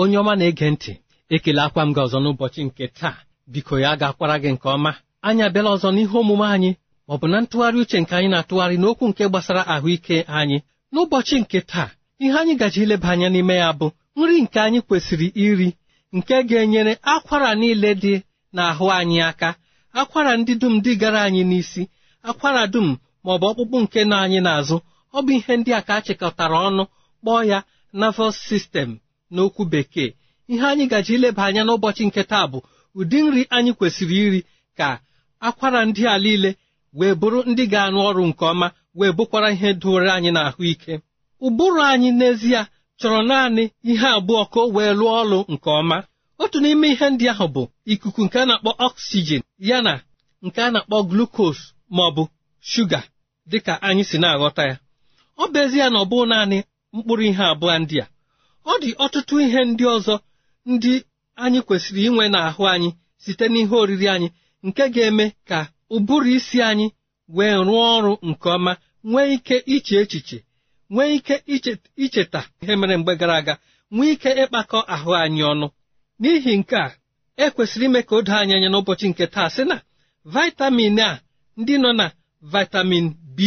onye ọma na-ege ntị ekele akwa m gị ọzọ n'ụbọchị nke taa biko ya ga-akwara gị nke ọma anyị abịala ọzọ n'ihe omume anyị ọ bụ na ntụgharị uche nke anyị na-atụgharị n'okwu nke gbasara ahụike anyị n'ụbọchị nke taa ihe anyị gaji ileba anya n'ime ya bụ nri nke anyị kwesịrị iri nke ga-enyere akwara niile dị n'ahụ anyị aka akwara ndị dum dị gara anyị n'isi akwara dum ma ọ bụ ọkpụkpụ nke nọ anyị n'azụ ọ bụ ihe ndị a ka a chịkọtara ọnụ kpọọ ya nervous system n'okwu bekee ihe anyị gaji ileba anya n'ụbọchị nke taa bụ ụdị nri anyị kwesịrị iri ka akwara ndị a niile wee bụrụ ndị ga-arụ ọrụ nke ọma wee bụkwara ihe doro anyị n'ahụ ike ụbụrụ anyị n'ezie chọrọ naanị ihe abụọ ka o wee lụọ ọrụ nke ọma otu n'ime ihe ndị ahụ bụ ikuku nke a na-akpọ ọksijin ya na nke a na-akpọ glukos ma ọ bụ shuga dịka anyị si na-aghọta ya ọ bụ ezie na ọ bụ naanị mkpụrụ ihe abụọ ndị a ọ dị ọtụtụ ihe ndị ọzọ ndị anyị kwesịrị inwe n'ahụ anyị site n'ihe oriri anyị nke ga-eme ka ụbụrụ isi anyị wee rụọ ọrụ nke ọma nwee ike iche echiche nwee ike icheta ihe mere mgbe gara aga nwee ike ịkpakọ ahụ anyị ọnụ n'ihi nke a ekwesịrị ime ka o doo anyị anya n'ụbọchị nke taa sị na vitamin a ndị nọ na vitamin B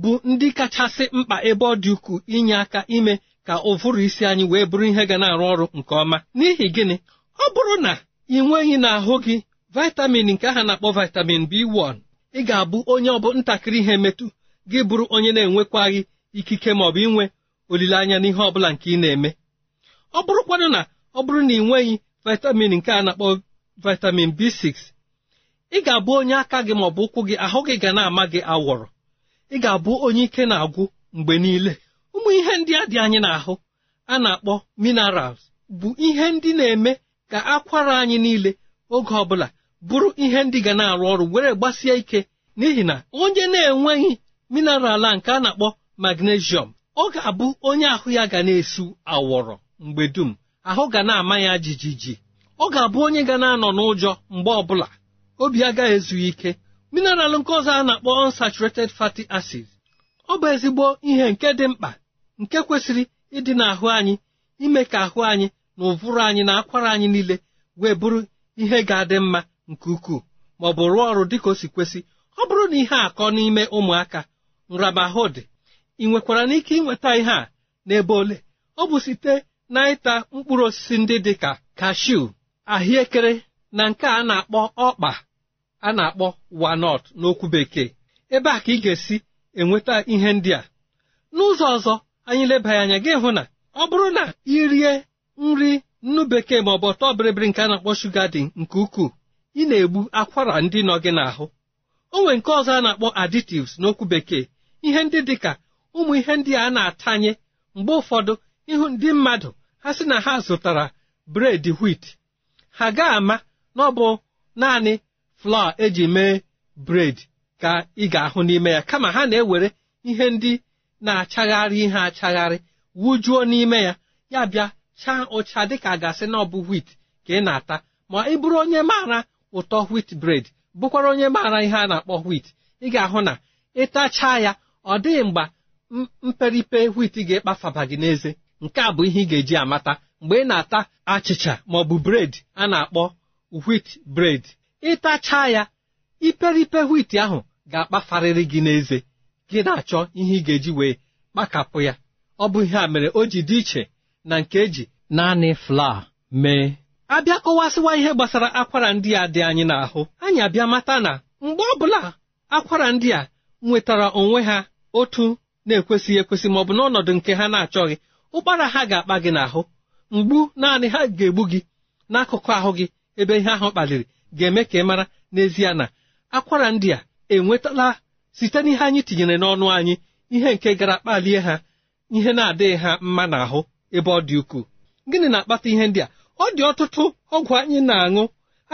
bụ ndị kachasị mkpa ebe ọ dị ukwuu inye aka ime ka ụvụrụ isi anyị wee bụrụ ihe ga na-arụ ọrụ nke ọma n'ihi gịnị ọ bụrụ na ị nweghị n'ahụ gị vitamin nke aha na-akpọ vitamin B1 ị ga-abụ onye ọbụ ntakịrị ihe metụ gị bụrụ onye na-enwekwaghị ikike ma ọ bụ inwe olileanya n'ihe ọ bụla nke ị na-eme ọ bụrụkwanụ na ọ bụrụ na ị nweghị vitamin nke a na-akpọ vitamin B6 ị ga-abụ onye aka gị ma ọ bụ ụkwụ gị ahụ gị ga na-ama gị awọrọ ị ga-abụ onye ike na-agwụ mgbe niile ndị a dị anyị n'ahụ a na-akpọ minerals bụ ihe ndị na-eme ka akwara anyị niile oge ọbụla bụrụ ihe ndị ga na-arụ ọrụ were gbasie ike n'ihi na onye na-enweghị mineral a nke a na-akpọ magnesium ọ ga-abụ onye ahụ ya ga na-esu awọrọ mgbe dum ahụ ga na-ama ya jijiji ọ ga-abụ onye ga na-anọ n'ụjọ mgbe ọbụla obi agaghị ezu ike mineral nke ọzọ a na-akpọ unsaturated fatty acids ọ bụ ezigbo ihe nke dị mkpa nke kwesịrị ịdị n'ahụ anyị ime ka ahụ anyị na ụvụrụ anyị na akwara anyị niile wee bụrụ ihe ga-adị mma nke ukwuu ma ọ bụ rụọ ọrụ dịka o si kwesị ọ bụrụ na ihe akọ n'ime ụmụaka nramahụ dị ị nwekwara n'ike ịnweta ihe a n'ebe ole ọ bụ site na ịta mkpụrụ osisi ndị dị ka kashiu ahụekere na nke a na-akpọ ọkpa a na-akpọ walnut n'okwu bekee ebe a ka ị ga-esi enweta ihe ndị a n'ụzọ ọzọ anyị leba anya gị hụ na ọ bụrụ na ị rie nri nnu bekee ma ọ bụ ọtọ bịrịbịrị nke a na-akpọ shuga dị nke ukwuu ị na-egbu akwara ndị nọ gị n'ahụ o nwere nke ọzọ a na-akpọ additives n'okwu bekee ihe ndị dị ka ụmụ ihe ndị a na-atanye mgbe ụfọdụ ịhụ ndị mmadụ ha sị na ha zụtara bred wit ha ga-ama na ọ bụ naanị flawa eji mee bred ka ị ga-ahụ n'ime ya kama ha na-ewere ihe ndị na-achagharị ihe achagharị wujuo n'ime ya ya bịa chaa ụcha dịka a gasị na ọ bụ wit ka ị na-ata ma ị bụrụ onye maara ụtọ wit bred bụkwara onye maara ihe a na-akpọ wit ị ga-ahụ na ịtachaa ya ọ dịghị mgbe mperipe wit ga-ekpafaba gị n'eze nke a bụ ihe ị ga-eji amata mgbe ị na-ata achịcha ma ọ bụ bred a na-akpọ wit bred ịtachaa ya iperipe wit ahụ ga-akpafarịrị gị n'eze gị na-achọ ihe ị ga-eji wee kpakapụ ya ọ bụ ihe a mere o ji dị iche na nke eji naanị flaa mee abịa kọwasịwa ihe gbasara akwara ndị a dị anyị n'ahụ anyị abịa mata na mgbe ọbụla akwara ndị a nwetara onwe ha otu na-ekwesịghị ekwesị bụ n'ọnọdụ nke ha na-achọghị ụkpara ha ga-akpa gị n'ahụ mgbu naanị ha ga-egbu gị n'akụkụ ahụ gị ebe ihe ahụ kpaliri ga-eme ka ị mara n'ezie na akwara ndị a enwetala site n'ihe anyị tinyere n'ọnụ anyị ihe nke gara kpalie ha ihe na-adịghị ha mma n'ahụ ebe ọ dị ukwuu gịnị na-akpata ihe ndị a ọ dị ọtụtụ ọgwụ anyị na-aṅụ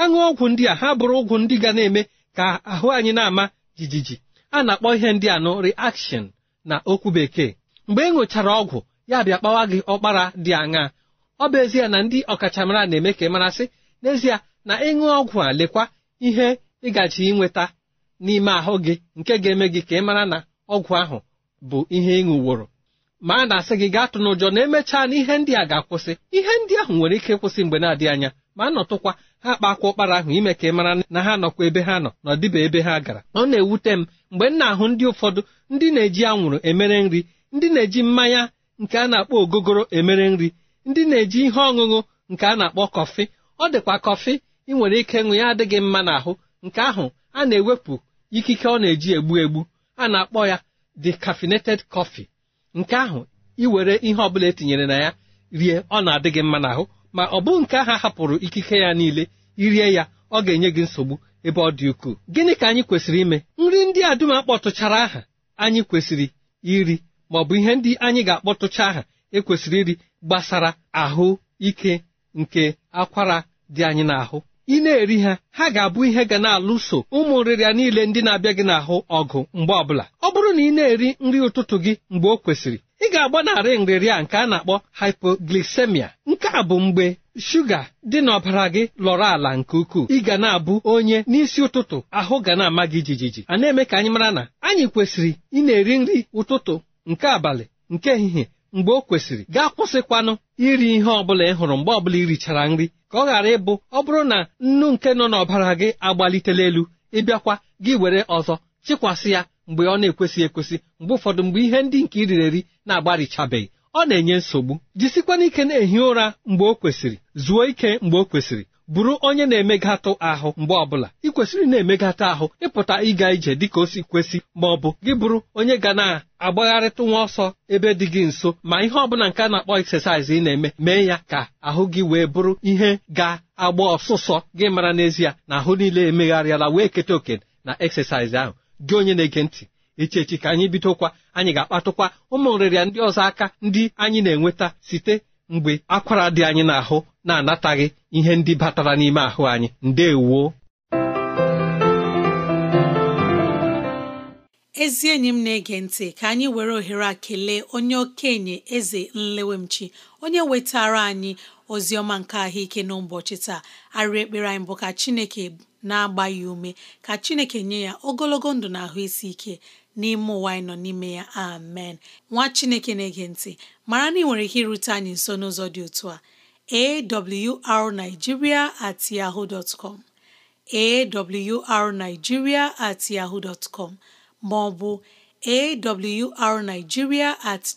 aṅụ ọgwụ ndị a ha bụrụ ụgwụ ndị ga na-eme ka ahụ anyị na-ama jijiji a na-akpọ ihe ndị a nụ reaction na okwu bekee mgbe ị e ọgwụ ya bịa kpawa gị ọkpara dị aṅaa ọ bụ ezie na ndị ọkachamara na-eme ka ị marasị n'ezie na ịṅụ ọgwụ a lekwa ihe ịgaji ịnweta n'ime ahụ gị nke ga-eme gị ka ị mara na ọgwụ ahụ bụ ihe ị ṅụworo ma a na-asị gị gaa n'ụjọ na emechaa na ihe ndị a ga-akwụsị ihe ndị ahụ nwere ike ịkwụsị mgbe na-adịghị anya ma a nọtụkwa ha kpakwa ụkpara ahụ ime ka ị mara na ha nọkwa ebe ha nọ na dịba ebe ha gara ọ na-ewute m mgbe m na-ahụ ndị ụfọdụ ndị na-eji anwụrụ emere nri ndị na-eji mmanya nke a na-akpọ ogogoro emere nri ndị na-eji ihe ọṅụṅụ nke a na-akpọ kọfị ọ dịkwa kọfị ị nwere ike ịṅụ ya adịghị mma n'ahụ nke ahụ a na-ewepụ ikike ọ na-eji egbu egbu a na-akpọ ya decaffeinated coffee nke ahụ iwere ihe ọbụla etinyere na ya rie ọ na-adị gị mma n'ahụ ma ọ bụ nke ahụ hapụrụ ikike ya niile irie ya ọ ga-enye gị nsogbu ebe ọ dị ukwuu gịnị ka anyị kwesịrị ime nri ndị a dum akpọtụchara aha anyị kwesịrị iri ma ọ bụ ihe ndị anyị ga-akpọtụcha aha ekwesịrị iri gbasara ahụ ike nke akwara dị anyị n'ahụ ị na-eri ha ha ga-abụ ihe ga na-alụso ụmụ nrịrịa niile ndị na-abịa gị n'ahụ ọgụ mgbe ọbụla ọ bụrụ na ị na-eri nri ụtụtụ gị mgbe o kwesịrị ị ga-agbanarị nrịrịa nke a na-akpọ hypoglycemia nke a bụ mgbe shuga dị n'ọbara gị lọrọ ala nke ukwuu ị ga na-abụ onye n'isi ụtụtụ ahụ ga na-ama gị jijiji a na-eme ka anyị mara na anyị kwesịrị ị na-eri nri ụtụtụ nke abalị nke ehihie mgbe o kwesịrị gaa kwụsịkwanụ iri ihe ọbụla ị hụrụ mgbe ọbụla irichara nri ka ọ ghara ịbụ ọ bụrụ na nnu nke nọ n'ọbara gị agbalitela elu ịbịakwa gị were ọzọ chịkwasị ya mgbe ọ na-ekwesị ekwesị mgbe ụfọdụ mgbe ihe ndị nke iriri eri na-agbarichabeghị ọ na-enye nsogbu jisikwana ike na-ehi ụra mgbe o kwesịrị zuo ike mgbe o kwesịrị bụrụ onye na-emegatụ ahụ mgbe ọbụla ị kwesịrị na-emegatụ ahụ ịpụta ịga ije dịka o si kwesị ma ọ bụ gị bụrụ onye ga na-agbagharịtụ nwa ọsọ ebe dị gị nso ma ihe ọbụla nke a na-akpọ eksesaịz ị na-eme mee ya ka ahụ gị wee bụrụ ihe ga-agba ọsụsọ gị mara n'ezie na ahụ niile emegharịala wee keta oke na eksesaịz ahụ gị onye na-ege ntị echechi ka anyị bidokwa anyị ga-akpatụkwa ụmụ nrịrịa ndị ọzọ aka ndị anyị na-enweta site mgbe akwara dị anyị n'ahụ na-anataghị ihe ndị batara n'ime ahụ anyị ndewo ezi enyi m na-ege ntị ka anyị were ohere a kelee onye okenye eze nlewemchi onye wetara anyị ozi ọma nke ahụike n'ụbọchị taa arị ekpere anyị bụ ka chineke na-agba ya ume ka chineke nye ya ogologo ndụ na ahụ isi ike n'ime ụwa anyị nọ n'ime ya amen nwa chineke na-ege ntị mara na ị nwere ike irute anyị nso n'ụzọ dị otu a arigiria at yahoo dot com at yahoo ma ọ bụ at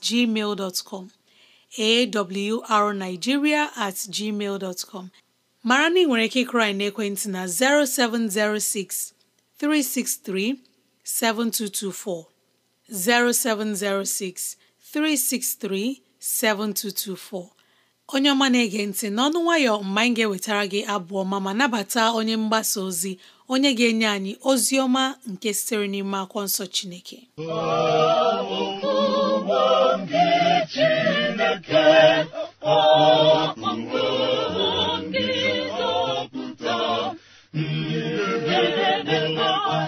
gmail dot com at gmail mara na ị nwere ike ịkụrụ anyị na 0706 363 7224 0706 363 7224 onye ọma na-ege ntị n'ọnụ nwayọ mgbe anyị ga-ewetara gị abụọ ma ma nabata onye mgbasa ozi onye ga-enye anyị ozi ọma nke sitere n'ime akwụkwọ nsọ Chineke Chineke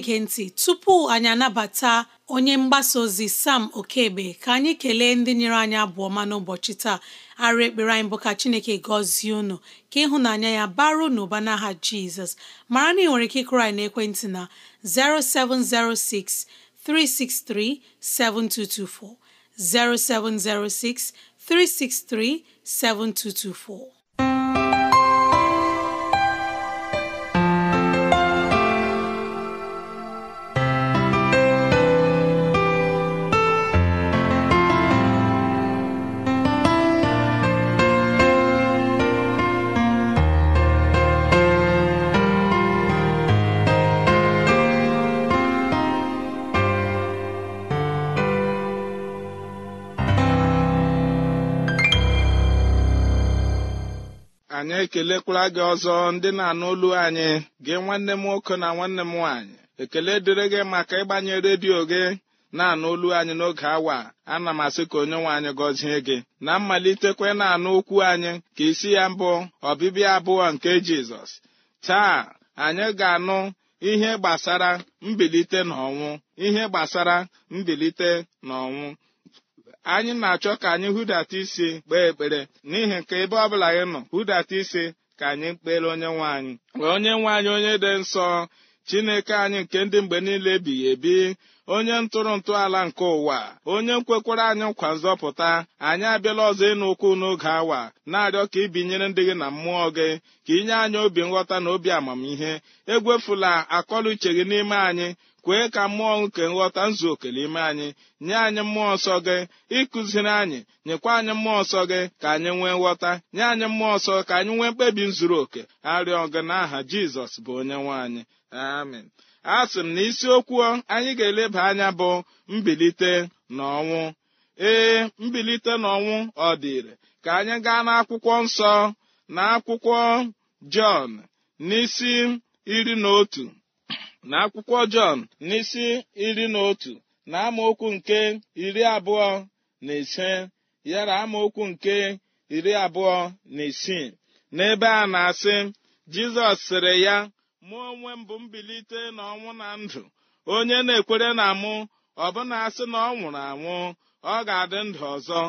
na-ege ntị tupu anyị anabata onye mgbasa ozi Sam Okebe ka anyị kelee ndị nyere anyị abụọ ma n'ụbọchị taa arụ ekpere anyị bụ ka Chineke gọzie unu ka ịhụnanya ya baro n'ụba n'aha Jizọs mara na ị nwere ike ịkụrụ anyị n'ekwentị na 0706 363 7224 0706 363 7224 anyị ekelekwara gị ọzọ ndị na-anụ olu anyị gị nwanne m nwoke na nwanne m nwaanyị ekele dịrị gị maka ịgbanye redio gị na-anụ olu anyị n'oge awa ana m asị ka onye nwe anyị gọzie gị na mmalitekwe na-anụ okwu anyị ka isi ya mbụ ọbịbịa abụọ nke Jizọs taa anyị ga-anụ ihe gbasara mbilite na ọnwụ ihe gbasara mbilite na ọnwụ anyị na-achọ ka anyị hụdata isi kpee ekpere n'ihi nke ebe ọbụla anyị nọ hụdata isi ka anyị kpere onye nwe anyị wee onye nwe anyị onye dị nsọ chineke anyị nke ndị mgbe niile ebighị ebi onye ntụrụ ala nke ụwa onye nkwekwara anyị nkwa nzọpụta anyị abịala ọzọ ịnụ ụkwụ n'oge awa na-arịọ ka ibinyere ndị gị na mmụọ gị ka inye anyị obi nghọta na obi amamihe egwefula akọlụ uche gị n'ime anyị kwee ka mmụọ nke nghọta nzu oke n'ime anyị nye anyị mmụọ nsọ gị ịkụziri anyị nyekwa anyị mmụọ nsọ gị ka anyị nwee nghọta nye anyị mmụọ nsọ ka anyị nwee mkpebi nzuru oke arịọ gị n'aha jizọs bụ onye nwe anyị amen a sị m na isiokwu anyị ga-eleba anya bụ mbilite na ọnwụ ee mbilite n'ọnwụ ọ dịrị ka anyị gaa n'akwụkwọ nsọ na akwụkwọ jọn n'isi iri na otu n'akwụkwọ akwụkwọ Jọn n'isi iri na otu na amaokwu nke iri abụọ na ise yara amaokwu nke iri abụọ na isii n'ebe a na-asị Jizọs sịrị ya mụ onwe m bụ mbilite na ọnwụ na ndụ onye na-ekwere na mụ ọbụna asị na ọ nwụrụ anwụ ọ ga-adị ndụ ọzọ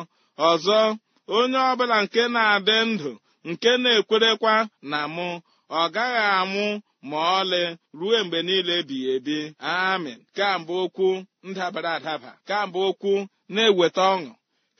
ọzọ onye ọbụla nke na-adị ndụ nke na-ekwerekwa na mụ ọ gaghị anwụ ma ọlị ruo mgbe niile ebighị ebi amin kamgbe okwu ndabara adaba kamgbe okwu na-eweta ọṅụ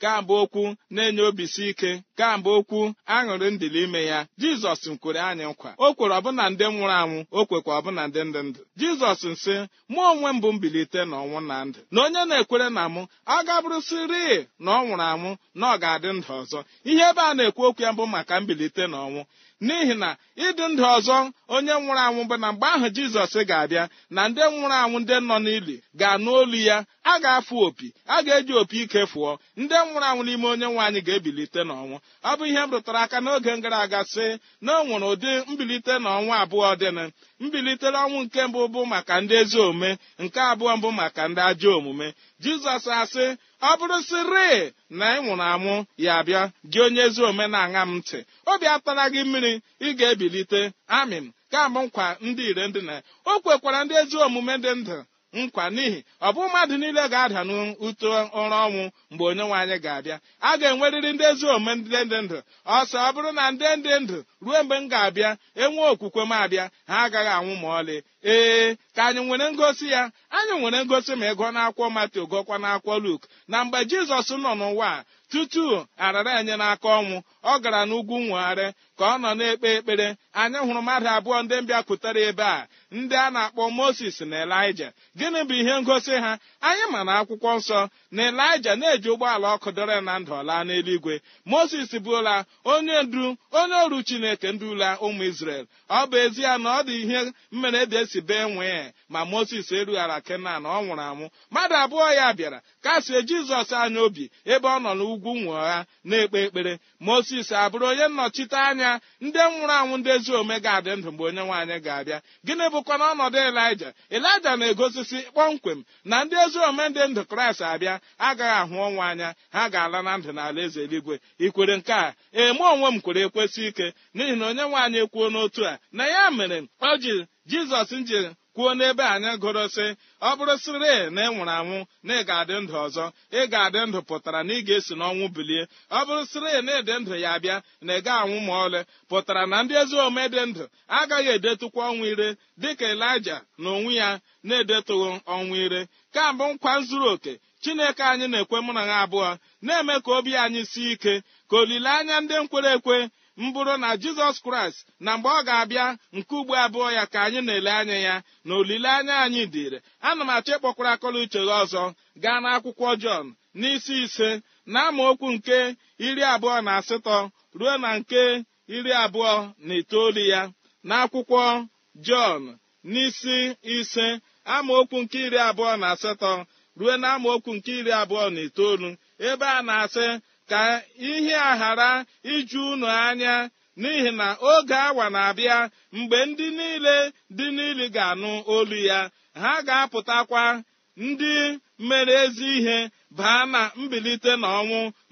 kamgbe okwu na-enye obisi ike kamgbe okwu aṅụrị ndịli ime ya jizọs kwere anyị nkwa o kwere ọbụna ndị nwụrụ anwụ o kwekwa ọbụna ndị ndị ndụ jizọs nsị mụ onwe m bụ mbilite na ọnwụ na ndụ na onye na-ekwere na mụ ọ gabụrụsịrị na ọ nwụrụ anwụ na ọ ga-adị ndụ ọzọ ihe ebe a na-ekwu okwu ya bụ maka mbilite na ọnwụ n'ihi na ịdị ndụ ọzọ onye nwụrụ anwụ bụ na mgbe ahụ jizọs ga-abịa na ndị nwụrụ anwụ ndị nọ n'ili ga-anụ olu ya a ga-afụ opi a ga-eji opi ike fụọ ndị nwụrụ anwụ n'ime onye nwe anyị ga-ebilite n'ọnwụ ọ bụ ihe m rụtara aka n'oge gara aga sị na o nwere ụdị mbilite n'ọnwụ abụọ dịnụ mbilite n'ọnwụ nke mbụ bụ maka ndị ezi omume nke abụọ mbụ maka ndị ajọ omume jizọs asị ọ bụrụ sịrị na ị nwụrụ anwụ ya abịa gị onye ezi omenaala m ntị obi atara gị mmiri ị ga-ebilite amịm ka bụ nkwa ndị ire ndị na o kwekwara ndị ezi omume dị ndụ nkwa n'ihi ọ bụ mmadụ niile ga-ada n'ụtọ ụra ọnwụ mgbe onye nwaanyị ga-abịa a ga-enwerịrị ndị ezi omume ndị dị ndụ ọsọ ọ bụrụ na ndị dị ndụ ruo mgbe m ga-abịa enwe okwukwe m abịa ha agaghị anwụ ma ọlị ee ka anyị nwere ngosi ya anyị nwere ngosi ma ịgụọ n'akwụkwọ Matio gụọkwa n'akwụkwọ Luk na mgbe Jizọs nọ n'ụwa a tutu arara enye n'aka ọnwụ ọ gara n'ugwu nwegharị ka ọ nọ na-ekpe ekpere anyị hụrụ mmadụ abụọ ndị mbịapụtara ebe a ndị a na-akpọ moses na elija gịnị bụ ihe ngosi ha anyị ma na akwụkwọ nsọ na elija na-eji ụgbọala ọkụ dọrọ na ndụ laa n'eluigwe moses bụla onye ndu onye ọrụ chineke ndula ụmụ isrel ọ bụ ezie na ọ dị ihe mmere dị e esi bee nwee ma moses erughara kenan ọ nwụrụ anwụ mmadụ abụọ ya bịara kasie jizọs anya obi ebe ọ nọ n'ugwu nwụọ ha na-ekpe ekpere moses abụrụ onye nnọchite anya ndị nwụrụ anwụ ndị ezi ome ga-adị ndụ mgbe onye nwaanyị ga-abịa gịnị bụkwa n'ọnọdụ ọnọdụ elija elija na-egosisi kpọmkwem na ndị ezi ome ndị ndụ kraịst abịa agaghị ahụ ọnwụ anya ha ga-ala na ndụ n'ala eze eluigwe ikwere nke a eme onwe m kwere ekwesị ike n'ihi na onye nwaanyị kwuo n'otu a na ya mere o ji jizọs nji kwuo n'ebe anyị gụrụ sị ọ bụrụ sịrị na ị nwụrụ anwụ na ị ga-adị ndụ ọzọ ị ga-adị ndụ pụtara na ị ga-esi n'ọnwụ bilie ọ bụrụ sịrị na ịdị ndụ ya bịa na ị ga anwụ ma ọlị pụtara na ndị ezi omume dị ndụ agaghị edetụkwa ọnwụ ire dịka elija na onwe ya na-edetụghị ọnwụ ire kambụ nkwa zuru oke chineke anyị na-ekwe mụ na ha abụọ na-eme ka obi anyị sie ike ka olileanya ndị nkwere ekwe mbụrụ na jizọs kraịst na mgbe ọ ga-abịa nke ugbo abụọ ya ka anyị na-ele anya ya na olileanya anyị dịrị ana m achọ ịkpọkwara akọla uche gị ọzọ gaa n'akwụkwọ jọn n'isi ise na okwu nke iri abụọ na asatọ ruo na nke iri abụọ na itoolu ya na akwụkwọ jọn n'isi ise amaokwu nke iri abụọ na asatọ ruo na amaokwu nke iri abụọ na itoolu ebe a na-asị ka ihe a ghara iju unu anya n'ihi na oge awa na-abịa mgbe ndị niile dị n'ili ga-anụ olu ya ha ga-apụtakwa ndị mere ezi ihe baa na mbilite na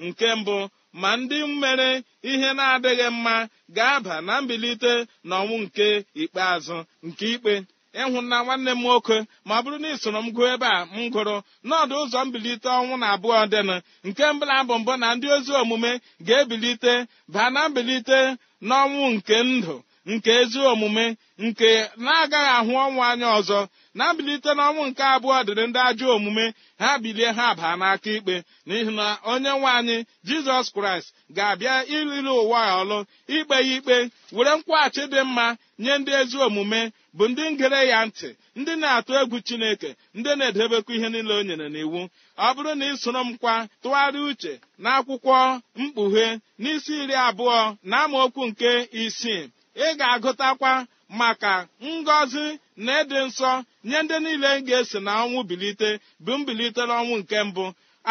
nke mbụ ma ndị mere ihe na-adịghị mma ga-aba na mbilite na ọnwụ nke ikpeazụ nke ikpe ịhụ nna nwanne m nwoke ma bụrụ na ị soro m gụọ ebe a m gụrụ n'ọdụ ụzọ mbilite ọnwụ na abụọ dịnụ nke mbụla bụ mbụ na ndị ozi omume ga-ebilite baa na mbilite n'ọnwụ nke ndụ nke ezi omume nke na-agaghị ahụ ọnwụ anya ọzọ na-abilite n'ọnwụ nke abụọ dịrị ndị ajọ omume ha bilie ha baa n'aka ikpe n'ihi na onye nwe anyị jizọs kraịst ga-abịa iliri ụwa ọlụ ikpe ya ikpe were nkwụghachi dị mma nye ndị ezi omume bụ ndị ngere ya ntị ndị na-atụ egwu chineke ndị na-edebekwa ihe niile o nyere n'iwu ọ bụrụ na ị soro m kwa tụgharịa uche n'akwụkwọ mkpughe n'isi iri abụọ na amaokwu nke isii ị ga-agụtakwa maka ngọzi na ịdị nsọ nye ndị niile ga-esi na ọnwụ bilite bụ mbilite n'ọnwụ nke mbụ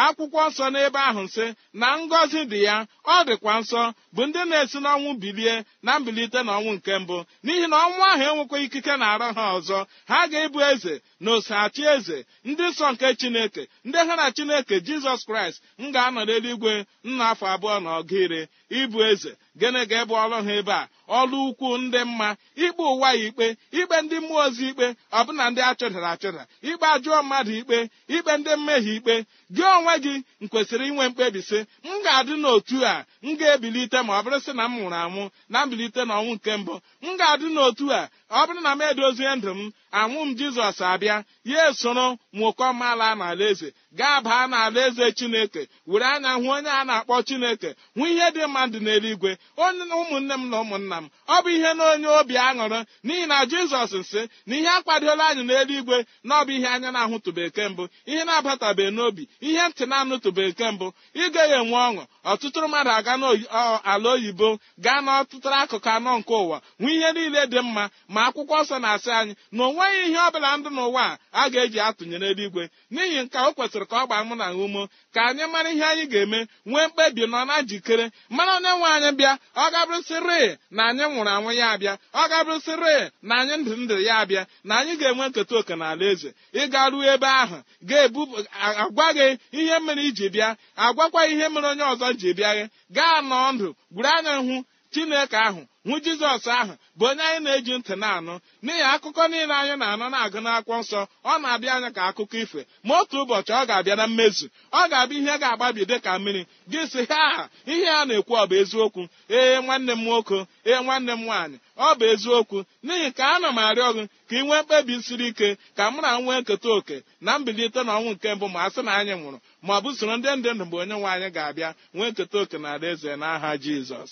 akwụkwọ nsọ n'ebe ahụ nsị na ngọzi dị ya ọ dịkwa nsọ bụ ndị na-esi n'ọnwụ bilie na mbilite na ọnwụ nke mbụ n'ihi na ọnwụ ahụ enwekwa ikike na arọ ha ọzọ ha ga-ebu eze na osachi eze ndị nsọ nke chineke ndị ha na chineke jizọs kraịst m ga-anọ n'eluigwe nna afọ abụọ na ọgụ ire eze gịnị ga-ebu ọrụ ha ebe a ọlụ ukwu ndị mma ikpe ụwa ya ikpe ikpe ndị mmụọ ozi ikpe ọbụna ndị achụdara achụdara ikpe ajụọ mmadụ ikpe ikpe ndị mmehie ikpe gị onwe gị kwesịrị inwe sị m ga-adị n'otu a m ga-ebilite ma ọ bụrụ sị na m nwụrụ anwụ na mbilite n'ọnwụ nke mbụ m ga-adị n'otu a ọ bụrụ na m edozie ndụ m anwụ m jizọs abịa ya esoro nwokọ mala n'ala eze gaa baa n'ala eze chineke were anya hụ onye a na-akpọ chineke hụ ihe dị mma dị n'eluigwe onye ụmụnne m na ụmụnna m ọ bụ ihe na onye obi aṅụrụ n'ihi na jizọs nsị na ihe akwadola anyị n'eluigwe na ọ bụ ihe anya na-ahụtụbeke mbụ ihe na-abatabeghị n'obi ihe ntị na-anụtụbeke mbụ ịga ya enwe ọṅụ ọtụtụ mmadụ aga n'ala oyibo gaa n'ọtụtụ akụkụ anọ nke ụwa hụ ihe niile dị mma ma ma akwụkwọ nsọ na-asị anyị na o nweghị ihe ọbụla ndụ n'ụwa a ga-eji atụnyere eluigwe n'ihi nke o kwesịrị ka ọ gbaa mụ na umo ka anyị mara ihe anyị ga-eme nwee mkpebi nọ na njikere mara onye nwe anyị bịa ọ gabụrịsịrị na anyị nwụrụ anwụ ya abịa ọ gabụrịsịrị na anyị ndụ ndụ ya abịa na anyị ga-enwe nketa oke na ala eze ịga ruo ebe ahụ ga-ebu agwa gị ihe mere iji bịa agwakwa ihe mere onye ọzọ ji bịa gị gaa nọọ ndụ gwuru anya hụ chineke ahụ nwu jizọs ahụ bụ onye anyị na-eji ntị na-anụ n'ihi akụkọ niile anyị na-anọ na-agụ n'akwụkwọ nsọ ọ na-abịa anya ka akụkọ ife ma otu ụbọchị ọ ga-abịa na mmezu ọ ga-abịa ihe ga-agbabi dị ka mmiri gị si ha ihe a na-ekwu ọ bụ eziokwu ee nwanne m nwoke ee nwanne m nwaanyị ọ bụ eziokwu n'ihi ka na m arịọ gị ka ị nwee mkpebi siri ike ka mụ na nwee nketa oke na mbilite na ọnwụ nke mbụ ma a na anyị nwụrụ ma ọ bụ soro ndị ndị ndụ mgbe onye nwe anyị ga-abịa nwee nketa oke na alaeze n'aha jizọs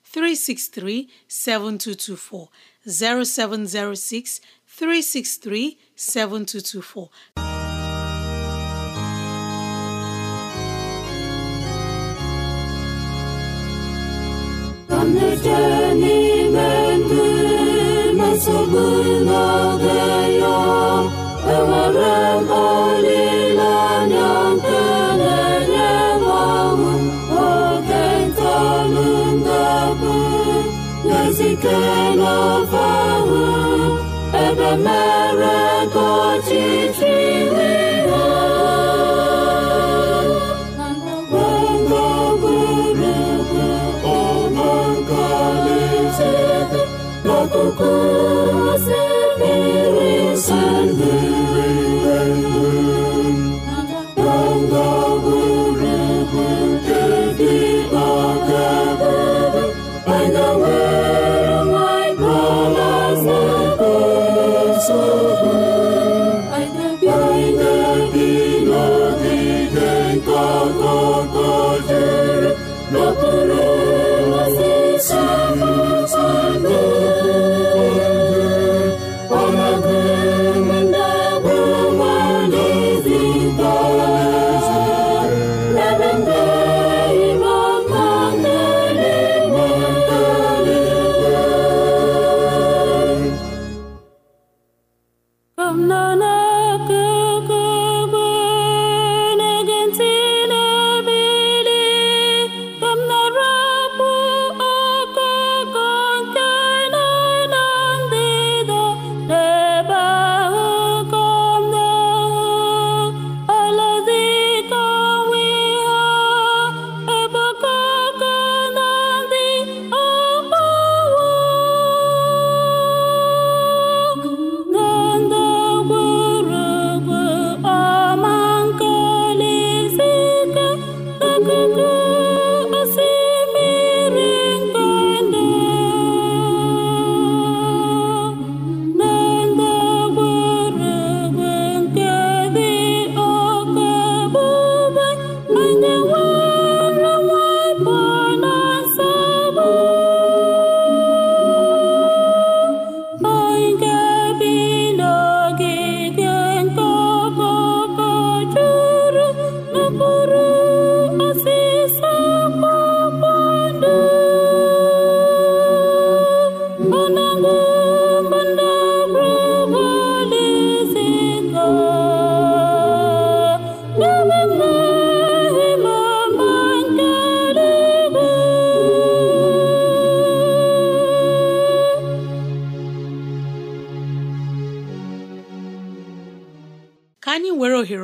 363 7224 0706 363 7224 Doamne, ce inimeni, mă să mână de ea. n'ọbọwụ ebe mere ego ọchịchị iwe ha gbagburugburu ụlọ nke alaeze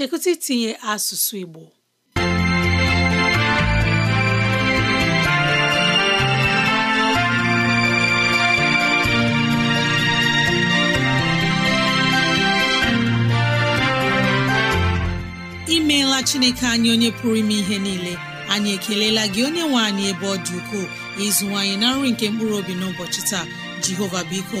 chekụta itinye asụsụ Igbo imeela Chineke anyị onye pụrụ ime ihe niile anyị ekelela gị onye nwe anyị ebe ọ dị ukwuu ịzụwanyị na nri nke mkpụrụ obi n'ụbọchị taa Jehova biko